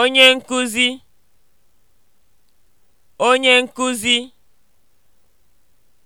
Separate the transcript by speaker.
Speaker 1: Onye nkuzi, onye nkuzi